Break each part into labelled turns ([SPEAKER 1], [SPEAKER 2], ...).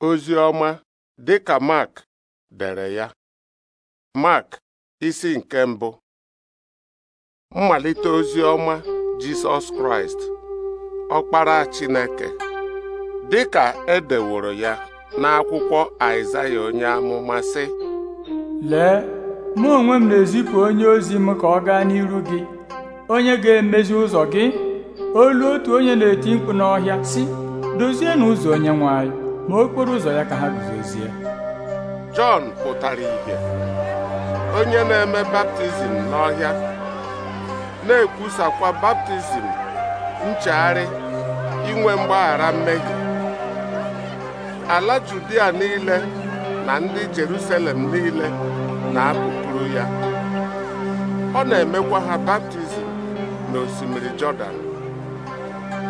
[SPEAKER 1] ozi ọma dị ka Mark dere ya Mark isi nke mbụ mmalite ozi ọma Jisọs Kraịst ọkpara Chineke dị ka edeworo ya n'akwụkwọ Aịzaya onye amụma sị lee mụ onwe m na-ezipụ onye ozi m ka ọ gaa n'iru gị onye ga-emezi ụzọ gị olu otu onye na-eti mkpu n'ọhịa si, dozienụ ụzọ onye nwanyị. ma okporo ụzọ ya ka ha guzozie Jọn pụtara ìhè onye na-eme baptizim n'ọhịa na-ekwusakwa baptizim nchegharị inwe mgbaghara mmehie ala Judia niile na ndị Jerusalem niile na-apụpụrụ ya ọ na-emekwa ha baptizim na osimiri Jọdan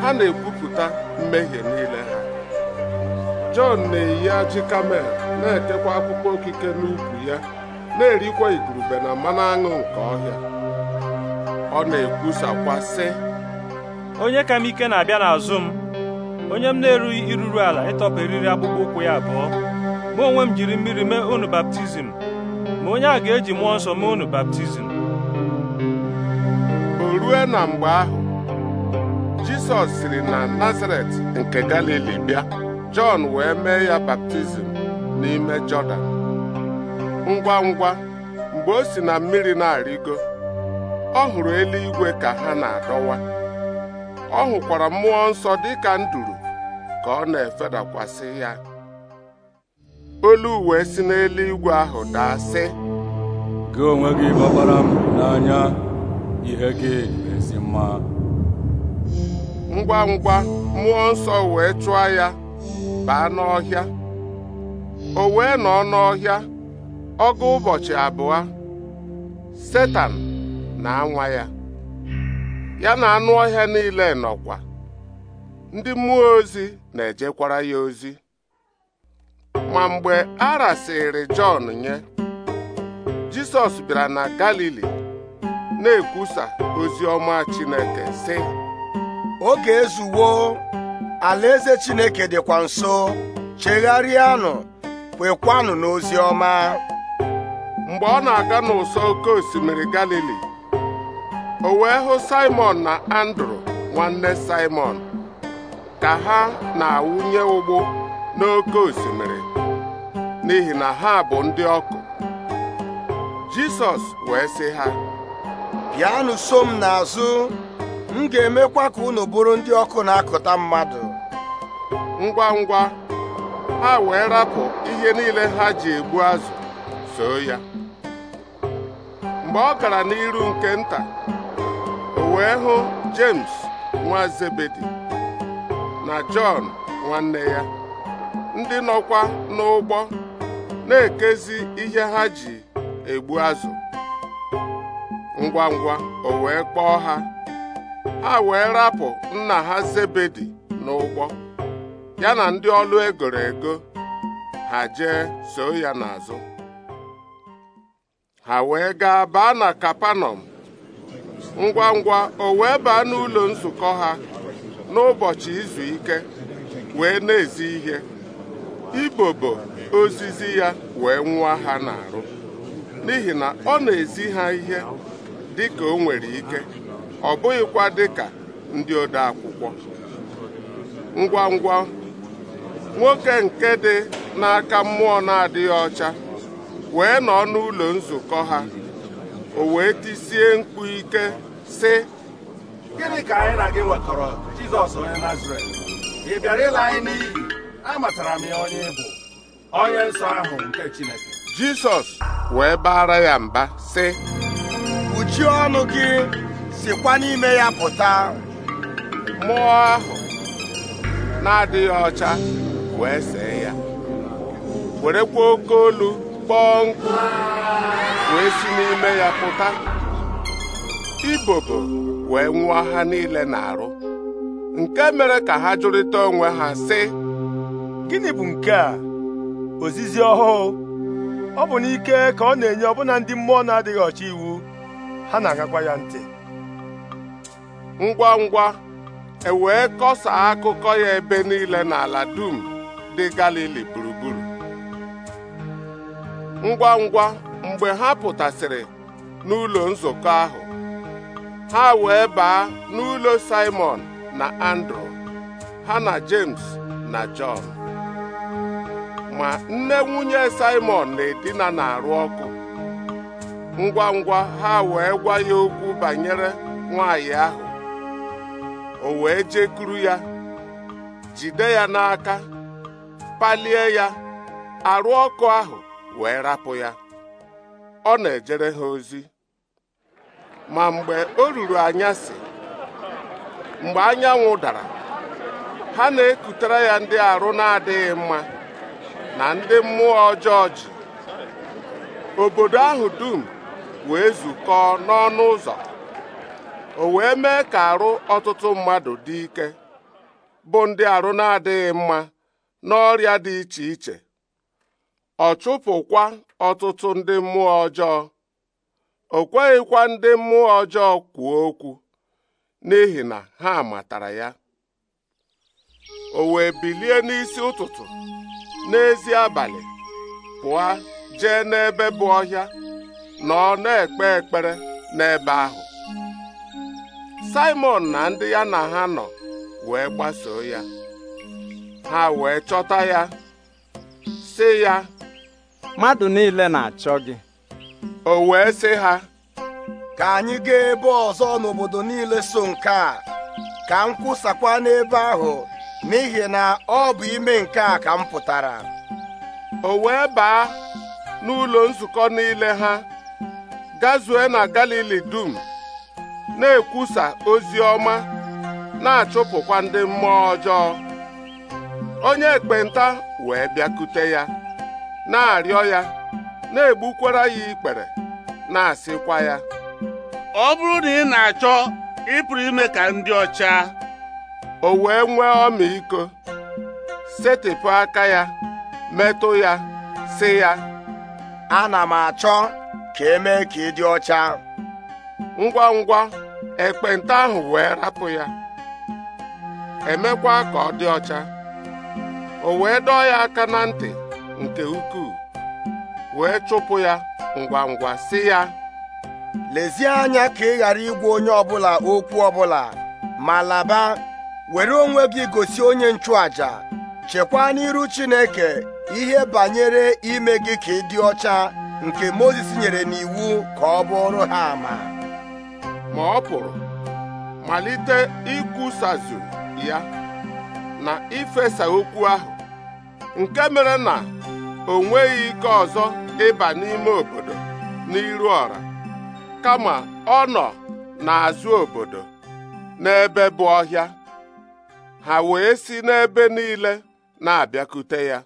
[SPEAKER 1] ha na-ekwupụta mmehie niile ha Jọn na-eyi ajị kamel na-ekekwa akpụkpọ okike n'ukwu ya na-erikwa igurube na mmanụ aṅụ nke ọhịa ọ na-ekwusakwa sị onye ka m ike na-abịa n'azụ m onye m na-erughị iruru ala ịtọpụ eriri akpụkpọ ụkwụ ya abụọ mụ onwe m jiri mmiri mee unu baptizim ma onye a ga-eji mmụọ nsọ mee unu baptizim o rue na mgbe ahụ Jisọs siri na Nazaret nke Galili bịa Jọn wee mee ya baptizim n'ime Jọdan ngwa ngwa mgbe o si na mmiri na-arịgo ọ hụrụ eluigwe ka ha na-adọwa ọ hụkwara mmụọ nsọ dị ka nduru ka ọ na-efedakwasị ya olu uwe si n'eluigwe ahụ daa sị gị onwe gị gbabara m n'anya ihe gị ezi mma ngwa ngwa mmụọ nsọ wee chụọ ya baa n'ọhịa o wee nọ n'ọhịa ọgụ ụbọchị abụọ setan na-anwa ya ya na anụ ọhịa niile nọkwa ndị mmụọ ozi na-ejekwara ya ozi ma mgbe a rasịrị Jọn nye Jisọs bịara na Galili na-ekwusa ozi ọma Chineke sị oge alaeze chineke dịkwa nso chegharịanụ kwekwanụ n'ozi ọma mgbe ọ na-aga n'ụsọ oke osimiri galili o wee hụ simon na andrew nwanne simon ka ha na-awụnye ụgbụ n'oke osimiri n'ihi na ha bụ ndị ọkụ jisọs wee sị ha bịanụ so m n'azụ m ga-emekwa ka unu bụrụ ndị ọkụ na-akụta mmadụ ngwa ngwa ha wee rapụ ihe niile ha ji egbu azụ soo ya mgbe ọ gara n'iru nke nta o wee hụ James nwa Zebedi na Jọn nwanne ya ndị nọkwa n'ụgbọ na-ekezi ihe ha ji egbu azụ ngwa ngwa o wee kpọọ ha ha wee rapụ nna ha Zebedi n'ụgbọ ya na ndị ọlụ egoro ego ha jee so ya n'azụ ha wee gaa baa na kapanọm ngwa ngwa o wee baa n'ụlọ nzukọ ha n'ụbọchị izu ike wee na-ezi ihe ibobo ozizi ya wee nwa ha n'arụ n'ihi na ọ na-ezi ha ihe dị ka o nwere ike ọ bụghịkwa ka ndị ode akwụkwọ ngwa ngwa nwoke nke dị n'aka mmụọ na-adịghị ọcha wee nọ n'ụlọ nzukọ ha o wee tisie mkpu ike si: gịnị ka anyị na gị nwekọrọ Jizọs onye Nazaret ị bịara ịla anyị n'iyi amatara m ya onye bụ onye nsọ ahụ nke Chineke Jizọs wee baara ya mba si: kpuchie ọnụ gị sikwa n'ime ya pụta mmụọ ahụ na-adịghị ọcha wee see ya werekwa oke olu kpọọ nkụ wee si n'ime ya pụta ibobo wee nwụọ ha niile na-arụ nke mere ka ha jụrịta onwe ha sị gịnị bụ nke a ozizi ọhụụ ọ bụ n'ike ka ọ na-enye ọbụna ndị mmụọ na-adịghị ọcha iwu ha na-agakwa ya ntị ngwa ngwa e wee kọsaa akụkọ ya ebe niile n'ala dum ndị Galili gburugburu ngwa ngwa mgbe ha pụtasịrị n'ụlọ nzukọ ahụ ha wee baa n'ụlọ Simon na Andrew ha na James na John ma nne nwunye Simon na-edina na-arụ ọkụ ngwa ngwa ha wee gwa ya okwu banyere nwaanyị ahụ o wee jekuru ya jide ya n'aka palie ya arụ ọkụ ahụ wee rapụ ya ọ na-ejere ha ozi ma mgbe o ruru anyasị mgbe anyanwụ dara ha na-ekutere ya ndị arụ na-adịghị mma na ndị mmụọ ọjọọ ji obodo ahụ dum wee zukọọ n'ọnụ ụzọ o wee mee ka arụ ọtụtụ mmadụ dị ike bụ ndị arụ na-adịghị mma n'ọrịa dị iche iche ọ chụpụkwa ọtụtụ ndị mmụọ ọjọọ o kweghịkwa ndị mmụọ ọjọọ kwuo okwu n'ihi na ha matara ya o wee bilie n'isi ụtụtụ n'ezi abalị pụọ jee n'ebe bụ ọhịa na ọ na-ekpe ekpere n'ebe ahụ simon na ndị ya na ha nọ wee gbasoo ya ha wee chọta ya sị ya mmadụ niile na-achọ gị o wee sị ha ka anyị gaa ebe ọzọ n'obodo niile so nke a ka m kwụsakwa n'ebe ahụ n'ihi na ọ bụ ime nke a ka m pụtara o wee baa n'ụlọ nzukọ niile ha gazue na Galili dum na-ekwusa ozi ọma na-achụpụkwa ndị mmụọ ọjọọ onye ekpenta wee bịakute ya na-arịọ ya na-egbukwara ya ikpere na-asịkwa ya ọ bụrụ na ị na-achọ ịpụrụ ime ka ndị ọcha o wee nwee ọmịiko setịpụ aka ya metụ ya sị ya ana m achọ ka emee ka ị dị ọcha ngwa ngwa ekpenta ahụ wee rapụ ya emekwa ka ọ dị ọcha o wee dọọ ya aka na ntị nke ukwuu wee chụpụ ya ngwa ngwa si ya lezie anya ka ị ghara igwa onye ọbụla okwu ọbụla ma laba were onwe gị gosi onye nchụaja chekwaa n'iru Chineke ihe banyere ime gị ka ị dị ọcha nke Mozis nyere n'iwu ka ọ bụrụ ha ama ma ọ pụrụ malite ikwusazụ ya na ifesa okwu ahụ nke mere na o nweghị ike ọzọ ịba n'ime obodo n'iru ọra kama ọ nọ n'azụ obodo n'ebe bụ ọhịa ha wee si n'ebe niile na-abịakute ya